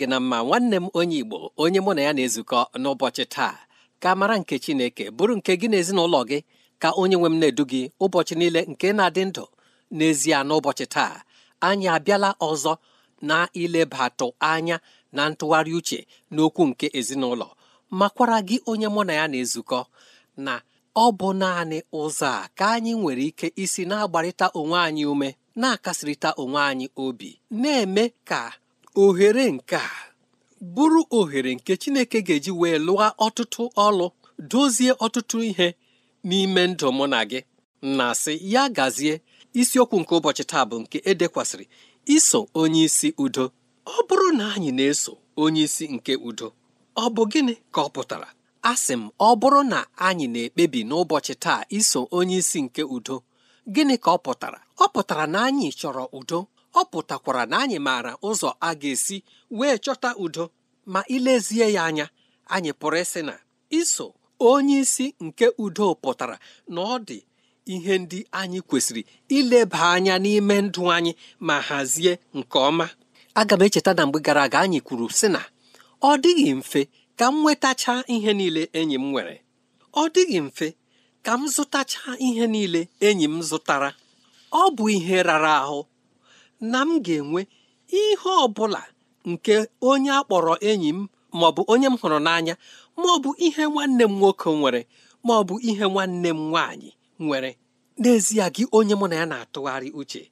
gị na mma nwanne m onye Igbo onye mụ na ya na-ezukọ n'ụbọchị taa ka mara nke Chineke bụrụ nke gị na ezinụlọ gị ka onye nwe m na-edu gị ụbọchị niile nke na-adị ndụ n'ezie n'ụbọchị taa anyị abịala ọzọ na ilebatụ anya na ntụgharị uche n'okwu nke ezinụlọ makwara gị onye mụ na ya na-ezukọ na ọ bụ naanị ụzọ a ka anyị nwere ike isi na-agbarịta onwe anyị ume na-akasịrịta onwe anyị obi na-eme ka ohere nke a bụrụ ohere nke Chineke ga-eji wee lụọ ọtụtụ ọlụ dozie ọtụtụ ihe n'ime ndụ mụ na gị na sị ya gazie isiokwu nke ụbọchị taa bụ nke edekwasịrị iso onyeisi udo ọ bụrụ na anyị na-eso onyeisi nke udo ọ bụ gịnị ka ọ pụtara asị m ọ bụrụ na anyị na-ekpebi n'ụbọchị taa iso onye nke udo gịnị ka ọ pụtara ọ pụtara na anyị chọrọ udo ọ pụtakwara na anyị maara ụzọ a ga-esi wee chọta udo ma ilezie ya anya anyị pụrụ ịsị na iso onye isi nke udo pụtara na ọ dị ihe ndị anyị kwesịrị ileba anya n'ime ndụ anyị ma hazie nke ọma aga m echeta na mgbe gara aga anyị kwuru sị na ọ dịghị mfe ka m nwetacha ihe niile enyi m nwere ọ dịghị mfe ka m zụtacha ihe niile enyi m zụtara ọ bụ ihe rara ahụ na m ga-enwe ihe ọ bụla nke onye a kpọrọ enyi m ma ọ bụ onye m hụrụ n'anya ma ọ bụ ihe nwanne m nwoke nwere ma ọ bụ ihe nwanne m nwaanyị nwere n'ezie gị onye mụ na ya na-atụgharị uche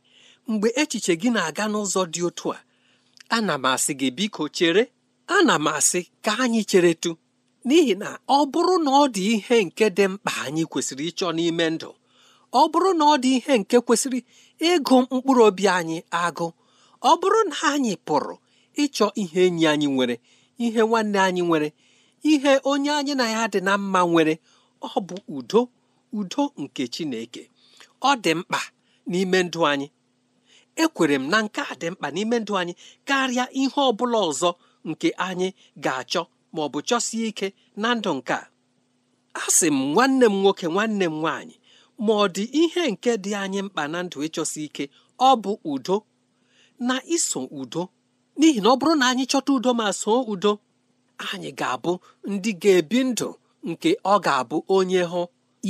mgbe echiche gị na-aga n'ụzọ dị otu a ana m asị gị biko chere ana m asị ka anyị cheretu n'ihi na ọ bụrụ na ọ dị ihe nke dị mkpa anyị kwesịrị ịchọ n'ime ndụ ọ bụrụ na ọ dị ihe nke kwesịrị ịgụ mkpụrụ obi anyị agụ ọ bụrụ na anyị pụrụ ịchọ ihe enyi anyị nwere ihe nwanne anyị nwere ihe onye anyị na ya dị na mma nwere ọ bụ udo udo nke Chineke ọ dị mkpa n'ime ndụ anyị ekwere m na nke a dị mkpa n'ime ndụ anyị karịa ihe ọ bụla ọzọ nke anyị ga-achọ ma bụ chọsie ike na ndụ nke a asị m nwanne m nwoke nwanne m nwaanyị ma ọ dị ihe nke dị anyị mkpa na ndụ ịchọsi ike ọ bụ udo na iso udo n'ihi na ọ bụrụ na anyị chọta udo ma soo udo anyị ga-abụ ndị ga-ebi ndụ nke ọ ga-abụ onye hụ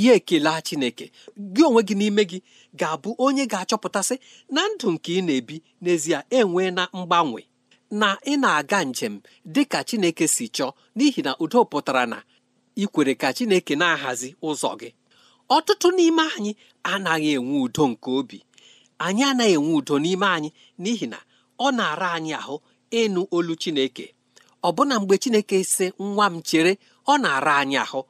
ya ekele Chineke gị onwe gị n'ime gị ga-abụ onye ga-achọpụtasị na ndụ nke ị na-ebi n'ezie enwe na mgbanwe na ị na-aga njem dị ka Chineke si chọọ n'ihi na udo pụtara na ikwere ka Chineke na-ahazi ụzọ gị ọtụtụ n'ime anyị anaghị enwe udo nke obi anyị anaghị enwe udo n'ime anyị n'ihi na ọ na-ara anyị ahụ ịnụ olu chineke ọbụna mgbe chineke sị nwa m chere ọ na-ara anyị ahụ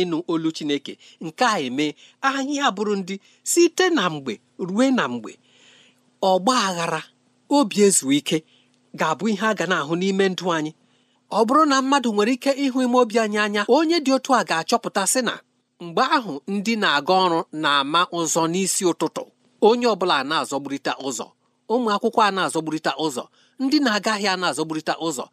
ịnụ olu chineke nke a eme anyị abụrụ ndị site na mgbe rue na mgbe ọgba aghara obi ezu ike ga-abụ ihe a ga na-ahụ n'ime ndụ anyị ọ bụrụ na mmadụ nwere ike ịhụ ime obi anyị anya onye dị otu a ga-achọpụta sị na mgbe ahụ ndị na-aga ọrụ na-ama ụzọ n'isi ụtụtụ onye ọbụla na azọgburita ụzọ ụmụ akwụkwọ a na azọgburita ụzọ ndị na-aga ahịa na azọgburita ụzọ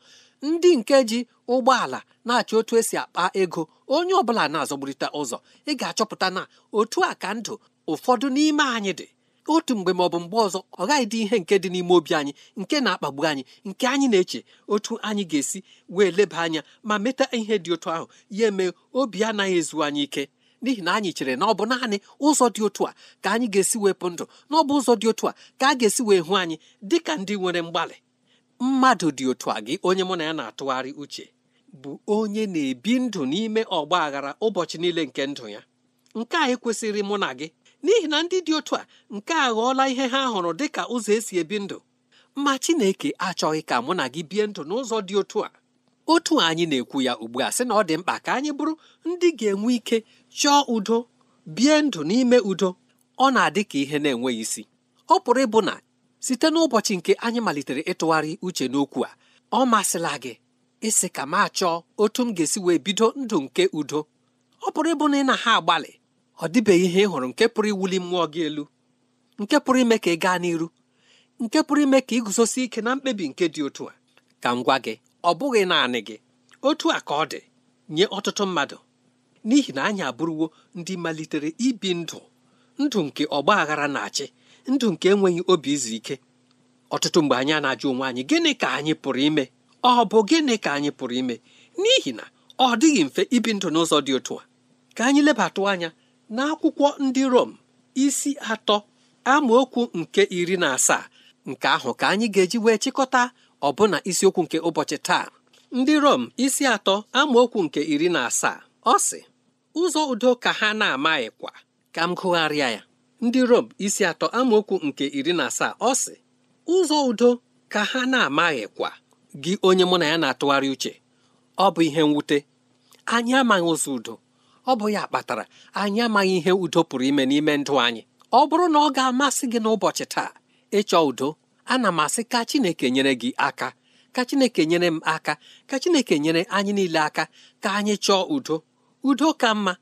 ndị nke ji ụgbọala na-achọ otu esi akpa ego onye ọbụla na azọgburita ụzọ ị ga-achọpụta na otu a ka ndụ ụfọdụ n'ime anyị dị otu mgbe maọbụ bụ mgbe ọzọ ọ gaghị dị ihe nke dị n'ime obi anyị nke na-akpagbu anyị nke anyị na-eche otu anyị ga-esi wee leba anya ma meta ihe dị otu ahụ ya eme obi anaghị ezu anyị ike n'ihi na anyị chere na ọ bụ naanị ụzọ dị otu a ka anyị ga-esi wepụ ndụ na ọ bụ ụzọ dị otu a ka a ga-esi wee hụ anyị dị ka ndị nwere mgbalị mmadụ dị otu a gị onye mụ na ya na-atụgharị uche bụ onye na-ebi ndụ n'ime ọgba aghara ụbọchị niile nke ndụ ya nke a ekwesịrị mụ na gị n'ihi na ndị dị otu a nke a ghọọla ihe ha hụrụ dị ka ụzọ esi ebi ndụ ma Chineke achọghị ka mụ na gị bie ndụ n'ụzọ dị otu a otu anyị na-ekwu ya ugbu a sị na ọ dị mkpa ka anyị bụrụ ndị ga-enwe ike chọọ udo bie ndụ n'ime udo ọ na-adị ka ihe na-enweghị isi ọ pụrụ ịbụ na site n'ụbọchị nke anyị malitere ịtụgharị uche n'okwu a ọ masịla gị ịsị ka m achọọ otu m ga-esi wee bido ndụ nke udo ọ pụrụ ịbụ na ị na ha agbalị ọ dịbeghị ihe ị hụrụ nke pụrụ iwuli mmụọ gị elu nke pụrụ ime ka ị gaa n'iru nke pụrụ ime ka iguzosi ike na mkpebi nke dị otu a ka m gwa gị ọ bụghị naanị gị otu a ka ọ dị nye ọtụtụ mmadụ n'ihi na anyị abụrụwo ndị malitere ibi ndụ ndụ nke ọgba aghara na-achị ndụ nke enweghị obi izu ike ọtụtụ mgbe anyị na-ajụ onwe anyị gịnị ka anyị pụrụ ime ọ bụ gịnị ka anyị pụrụ ime n'ihi na ọ dịghị mfe ibi ndụ n'ụzọ dị otu a ka anyị lebatụ anya n'akwụkwọ ndị Rom isi atọ amaokwu nke iri na asaa nke ahụ ka anyị ga-eji wee chịkọta ọbụna isiokwu nke ụbọchị taa ndị Rom isi atọ amaokwu nke iri na asaa ọ sị ụzọ udo ka ha na-amaghịkwa ka m gụgharịa ya ndị Rom isi atọ amaokwu nke iri na asaa ọ sị ụzọ udo ka ha na kwa gị onye mụ na ya na-atụgharị uche ọ bụ ihe mwute anyị amaghị ụzọ udo ọ bụ ya kpatara anyị amaghị ihe udo pụrụ ime n'ime ndụ anyị ọ bụrụ na ọ ga-amasị gị n'ụbọchị taa ịchọ udo ana m asị ka Chineke nyere gị aka ka Chineke nyere m aka ka Chineke nyere anyị niile aka ka anyị chọọ udo udo ka mma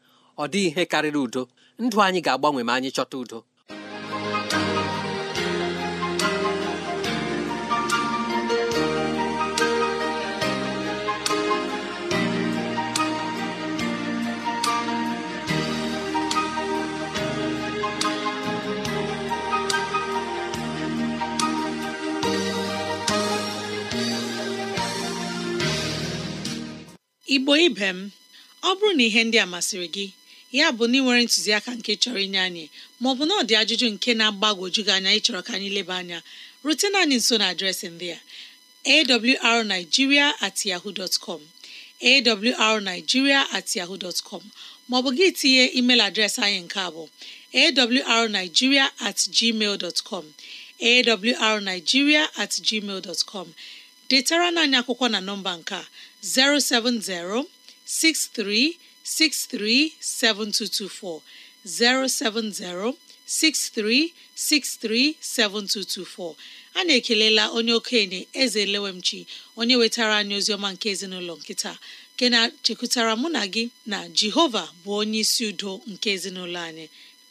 ọ dịghị ihe karịrị udo ndụ anyị ga-agbanwe ma anyị chọta udo igbo ibe m ọ bụrụ na ihe ndị a masịrị gị ya bụ na ị nwere ntụziaka nke chọrọ inye anyị maọbụ na ọ dị ajụjụ nke na-agbagwoju gị anya ịchọrọ ka anyị leba anya rutena anyị nso na adreesị ndị a awrnigeria at yahoo com awrnigeria at yahoo dot maọbụ gị tinye email adreesị anyị nke abụọ bụ at atgmal com awrnigeria at gmail detara anyị akwụkwọ na nọmba nke a 070 7224 070 7224 a na-ekelela onye okenye eze lewemchi onye wetara anyị oziọma nke ezinụlọ nkịta, nke na-chekwutara mụ na gị na jehova bụ onye isi udo nke ezinụlọ anyị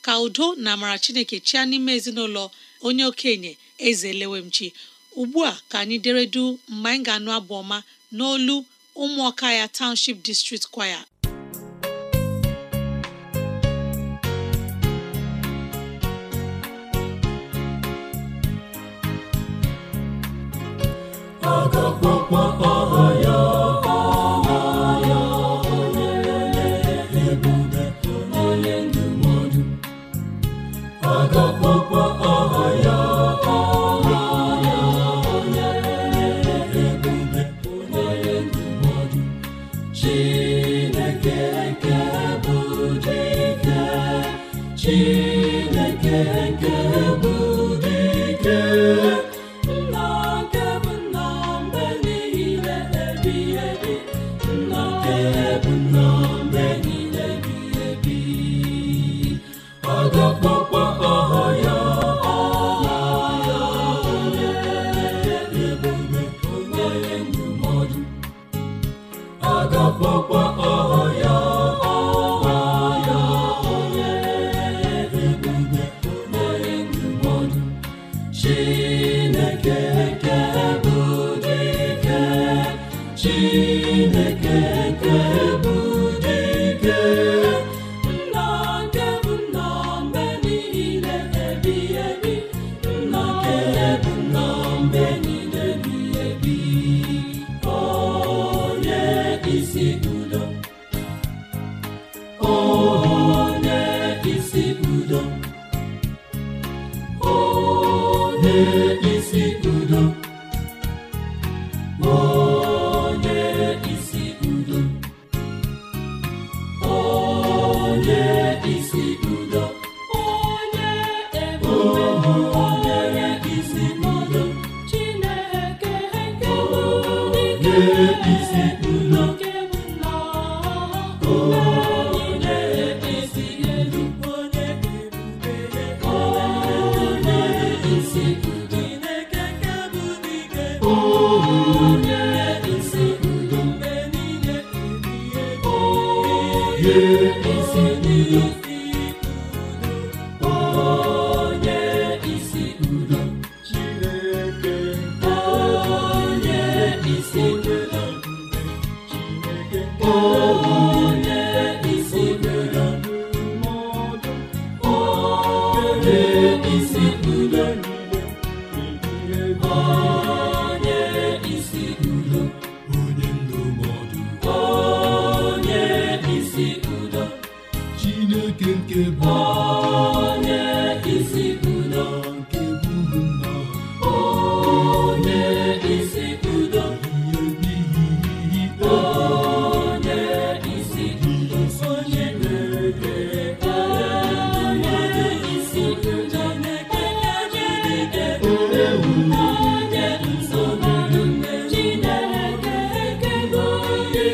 ka udo na amara chineke chịa n'ime ezinụlọ onye okenye eze lewemchi ugbu a ka anyị deredu mgbe anyị ga-anụ abụ ọma n'olu ụmụọka ya township district kwaya Chineke nke bụ dike Chineke nke me.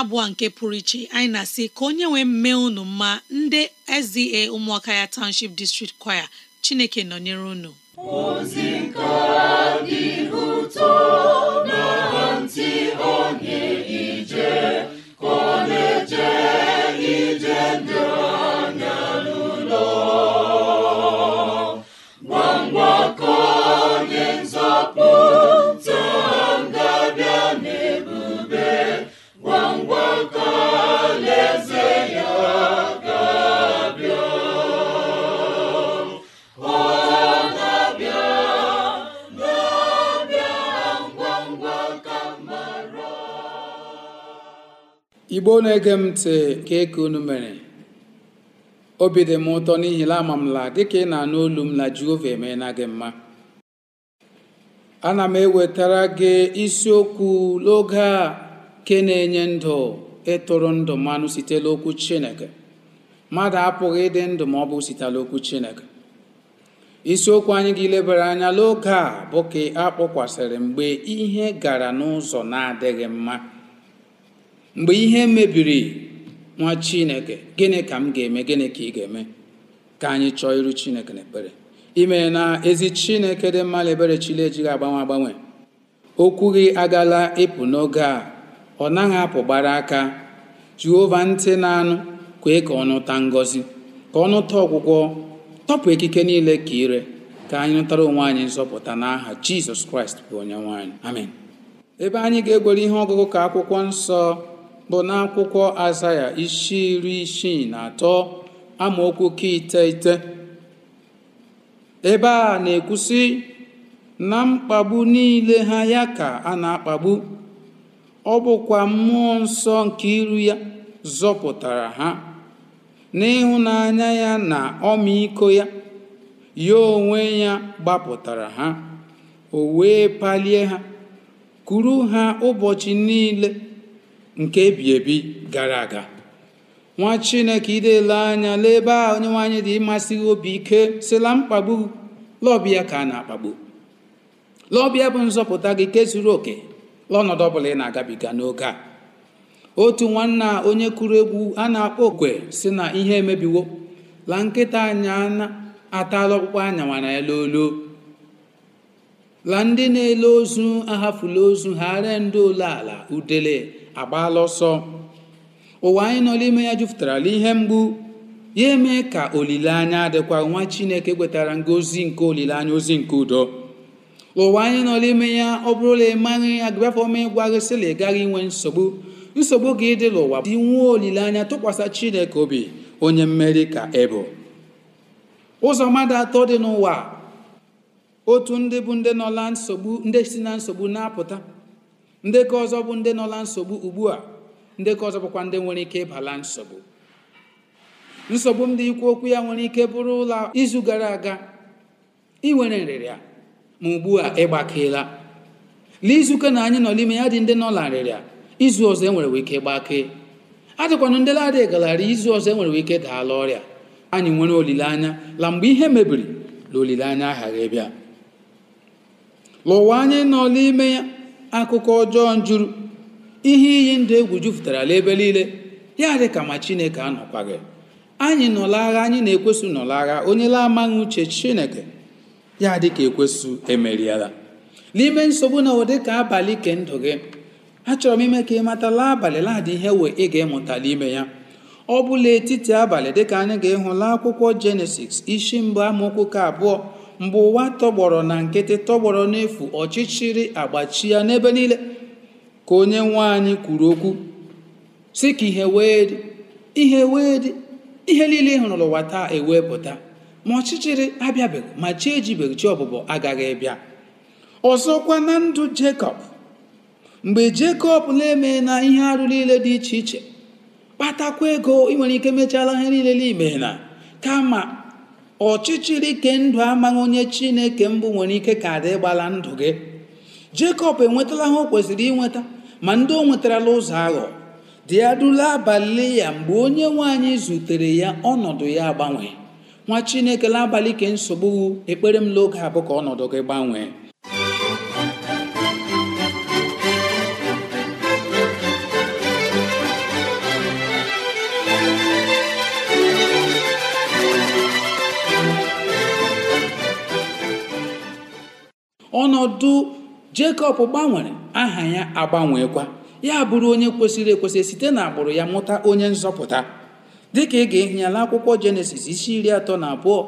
abụọ nke pụrụ iche anyị na-asị ka onye nwee mme unu mma ndị SDA ụmụaka ya Township District Choir Chineke nọnyere unu igbo na-ege m ntị nke ka unu mere obi dị m ụtọ n'ihi na ama m dịka ị na-anụ olu m na jehova emeela gị mma ana m ewetara gị isiokwu n'oge a ke na-enye ndụ ịtụrụ ndụ mmanụ site n'okwu chineke mmadụ apụghị ịdị ndụ ma ọ bụ site n'okwu chineke isiokwu anyị ga-elebara anya n'oge a bụ ka a kpọkwasịrị mgbe ihe gara n'ụzọ na-adịghị mma mgbe ihe mebiri nwa chineke gịnị ka m ga-eme gịnị ka ị ga-eme ka anyị chọọ iru chineke na ekpere ime na ezi chineke dị mma ebere chile ejighị agbanwe agbanwe okwu gị agala ịpụ n'oge a ọ naghị apụ gbara aka jehova ntị na-anụ kwee ka ọnụta ngọzi ka ọnụta ọgwụgwọ tọpụ ekike niile ka ire ka anyị nụtara onwe anyị nzọpụta n'aha jizọs kraịst bụ onye nwaanyị amen ebe anyị ga-egwere ihe ọgụgụ ka akwụkwọ nsọ bụ n'akwụkwọ azaya isi iri isii na atọ amaokwu ka iteghete ebe a na-ekwusi na mkpagbu niile ha ya ka a na-akpagbu ọ bụkwa mmụọ nsọ nke iru ya zọpụtara ha n'ịhụnanya ya na ọmịiko ya ya onwe ya gbapụtara ha o wee palie ha kuru ha ụbọchị niile nke ebi ebi gara aga nwa chineke idele anya n'ebe a onye nwaanyị dị ịmasị obi ike sila mkpagbu lọbịa ka a na-akpagbu lọbịa bụ nzọpụta gị ke zuru oke lọnọdụ ọbụla ị na-agabiga n'oge a otu nwanna onye kụrụ egwu a na-akpọ okwe si na ihe emebiwo la nkịta anya atala ọkpụkpọ anya nwara ya lolo la ndị na-ele ozu ahafula ozu ha ree ndị ole ala udele agbaala ọsọ ụwa anyị nọ n'ime ya jupụtarala ihe mgbu ya eme ka olileanya adịkwa nwa chineke kwetara ngozi nke olileanya ozi nke udo ụwa anyị nọ n'ime ya ọ bụrụla ịmaghị agụbafọ ọma ịgwa gị sịla ị inwe nsogbu nsogbu gị dị n'ụwa dị nwuo olileanya tụkwasị chineke obi onye mmeri ka ebụ ụzọ mmadụ atọ dị n'ụwa otu ndị bụ ndị nọla nsogbu ndị si na nsogbu na-apụta ndị ọzọ bụ ndị nọla nsogbu ugbu a ndekọ ọzọ bụkwa ndị nwere ike ịbala nsogbu nsogbu ndị ikwu okwu ya nwere ike bụrụ ụlọ izu gara aga inwere nwere nrịrịa ma ugbu a ịgbakeela n'izuụka na anyị nọ n'ime ya dị ndị nọ nrịrịa izu ọzọ enwere ike gbakee adịkwanụ ndị ladị galara izu ọzọ enwere ike daala ọrịa anyị nwere olileanya la mgbe ihe mebiri na olileanya aghaghị bịa lụwa anyị nọ n'ime ya akụkọ ọjọọ njuru ihe iyi ndụ egwu jupụtara ala ebe niile ya dị ka ma chineke gị anyị nọla agha anyị na ekwesị nọla agha onye la amaghị uche chineke ya dị ka ekwesu emeriela n'ime nsogbu na ụdị ka abalị ke ndụ gị achọrọ m ime ka ị matala abalị ladị ihe we ị ga-emụtala ime ya ọ bụla etiti abalị dịka anyị ga laa akwụkwọ jenesis isi mbụ amaokwu ka abụọ mgbe ụwa tọgbọrọ na nkịtị tọgbọrọ n'efu ọchịchịrị agbachi ya n'ebe niile ka onye nwe anyị kwuru okwu si ka ihe wee dị ihe wee dị ihe niile ị hụrụ ụwa taa e pụta ma ọchịchịrị abịabeghị ma chi ejibeghị chi ọbụbọ agaghị bịa ọzọkwa na ndụ jekọb mgbe jekọb na-eme na ihe arụ niile dị iche iche kpatakwa ego ị nwere ike mechala ihe niile n'ime na kama ọchịchịrị ike ndụ amaghị onye chineke mbụ nwere ike ka dị gbala ndụ gị jekọb enwetala ha o kwesịrị inweta ma ndị o nwetarala ụzọ aghọ dị adụla abalị ya mgbe onye nwanyị zutere ya ọnọdụ ya agbanwe nwa chineke n'abalị ke nsogbu ekpere m n'oge abụ ka ọnọdụ gị gbanwee ọnọdụ Jekọb gbanwere aha ya agbanweekwa ya bụrụ onye kwesịrị ekwesị site n'agbụrụ ya mụta onye nzọpụta dịka ị ga-ehi ya n'akwụkwọ jenesis isi iri atọ na abụọ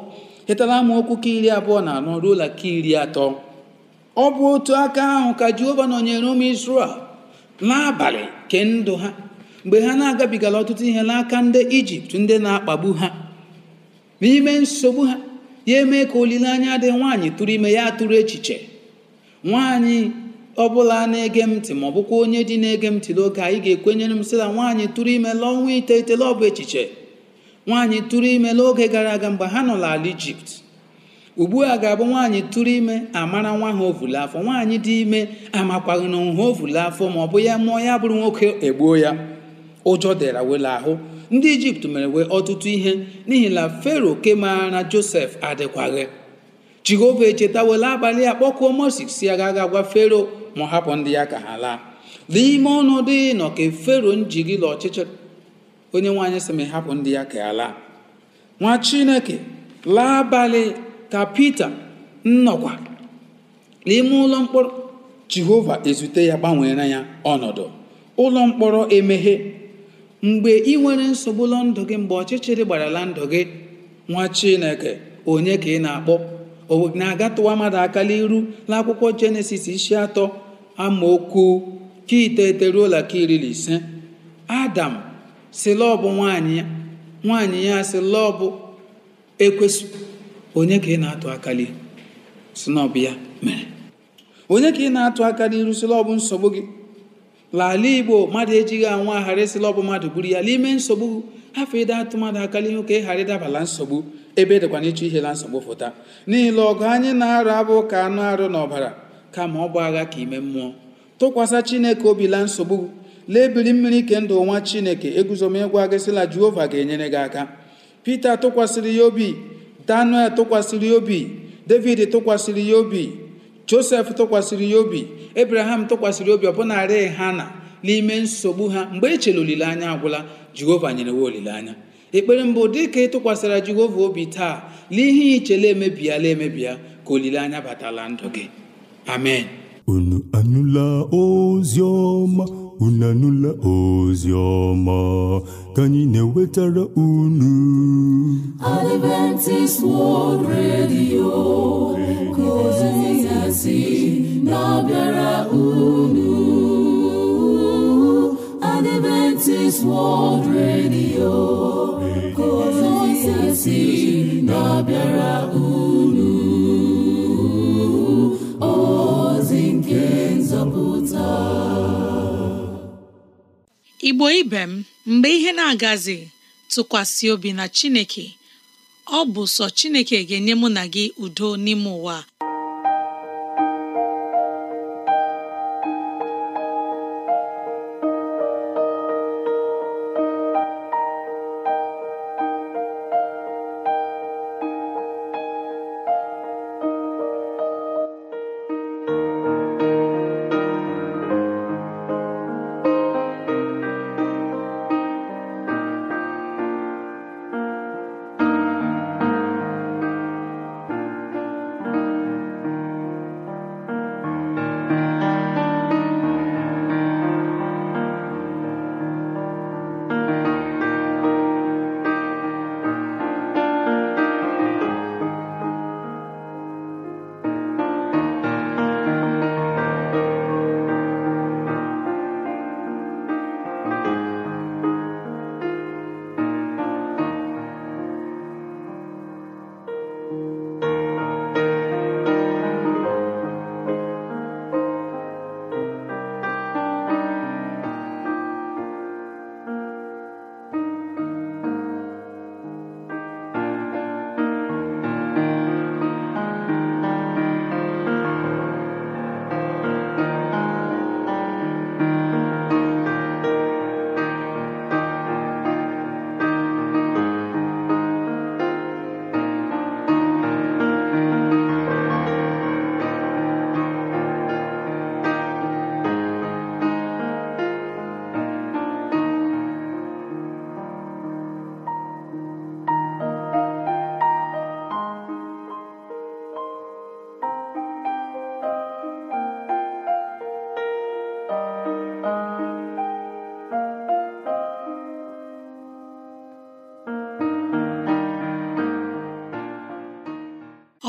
hetara okwu ka iri abụọ na anọ ruola ka iri atọ ọ bụ otu aka ahụ ka jehova nọnyere ụmụ israel n'abalị ke ndụ ha mgbe ha na-agabigala ọtụtụ ihe n'aka ndị ijipt ndị na-akpagbu ha n'ime nsogbu ha ya eme ka olileanya dị nwaanyị tụrụ ime ya tụrụ echiche nwaanyị ọbụla na-ege m ntị ma ọ bụkwa onye dị na-ege m ntị n'oge anyị ga-ekwenyere m sị nwaanyị tụrụ ime n'ọnwa iteghete ọ bụ echiche nwaanyị tụrụ ime n'oge gara aga mgbe ha nọ n'ala ijipt ugbu a ga-abụ nwaanyị tụrụ ime amara nwa ha ovule afọ nwaanyị dị ime amakwaghị na ha ovule afọ ma ọ bụ ya mụọ ya bụrụ nwoke egbuo ya ụjọ dịra wela ahụ ndị ijipt mere wee ọtụtụ ihe n'ihi na fero ke maara josef adịkwaghị jehova echetawela abalị akpọkuo moses si agaghị agwa fero ma ọ hapụ ndị ya ka ha laa n'ime ọnọdụ nọ ka fero njiri la ọchịchịrị onye nwaanyị sị ma hapụ ndị ya ka ya laa nwa chineke laa abalị ka pita nnọkwa n'ime ụlọ mkpọrọ jehova ezute ya gbanweere ya ọnọdụ ụlọ mkpọrọ emeghe mgbe ị nwere nsogbu ụlọ ndụ gị mgbe ọchịchịrị gbarala ndụ gị nwa chineke onye ka ị na-akpọ o na agatụwa mmadụ aka n'iru n'akwụkwọ jenesis isi atọ amaokwu ka iteghete ka iri na ise adam si nwanyị ya nwaanyị ya onye ka ị na-atụ aka n'iru si ya mere onye ka ị na-atụ aka n'iru nsogbu gị lala igbo mmadụ ejighị anwa aghara esila ọbụ mmadụ buru ya n'ime nsogbu afọ ịda atụ mmadụ aka n'ihu ka ị ghara ịdabala nsogbu ebe e dịkwa n'ịchọ ihe na nsogbu fụta n'ile ọgụ anyị na-arụ abụ ka anụ arụ n'ọbara kama ọ bụ agha ka ime mmụọ tụkwasị chineke obi nsogbu lebiri mmiri ike ndụ nwa chineke eguzomegwa gị sịla jehova ga-enyere gị aka pita tụkwasịrị ya obi daniel tụkwasịrị ya obi david tụkwasịrị ya obi josef tụkwasịrị ya obi abraham tụkwasịrị obi ha na n'ime nsogbu ha mgbe e chere olileanya agwụla jehova nyere wa olileanya ekpere mbụ dị dịka ịtụkwasịra jehova obi taa na ihe ichele emebiela emebia ka olileanya batala ndụ gị amen unu anụla ozi ọma unu anụla ozi ka anyị na-ewetara unu Adventist World Radio ka ozi ya si na-abịara unu Adventist World Radio kozisi na-abịara unu ozi nke nzọpụta Igbo ibe m mgbe ihe na-agazi tụkwasị obi na Chineke ọ bụ sọ Chineke ga-enye mụ na gị udo n'ime ụwa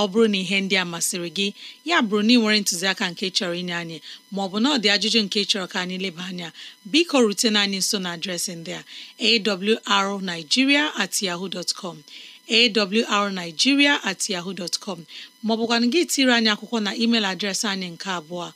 ọ bụrụ na ihe ndị a masịrị gị ya bụrụ na ị nwere ntụziaka nke chọrọ inye anyị maọbụ na ọ dị ajụjụ nke chọrọ ka anyị leba anya biko rutena anyị nso na adresị ndị a awrnigeria at yahoo com awrnigeria at yahoo dot com maọbụkwanụ gị tiri anyị akwụkwọ na email adreesị anyị nke abụọ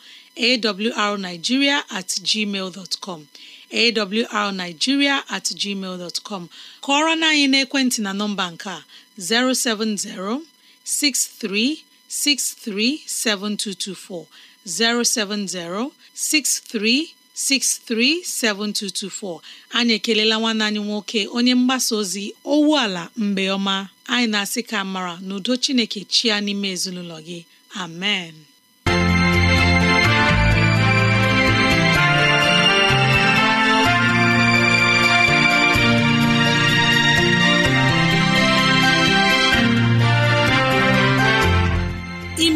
awrnigeria at gmail com awrnigeria at gmail dot com kọọrọ na anyị n'ekwentị na nọmba nke a 070 07063637224 7224 anyị ekelela nwanne anyị nwoke onye mgbasa ozi ala mgbe ọma anyị na-asị ka mara n'udo Chineke chia n'ime ezinụlọ gị amen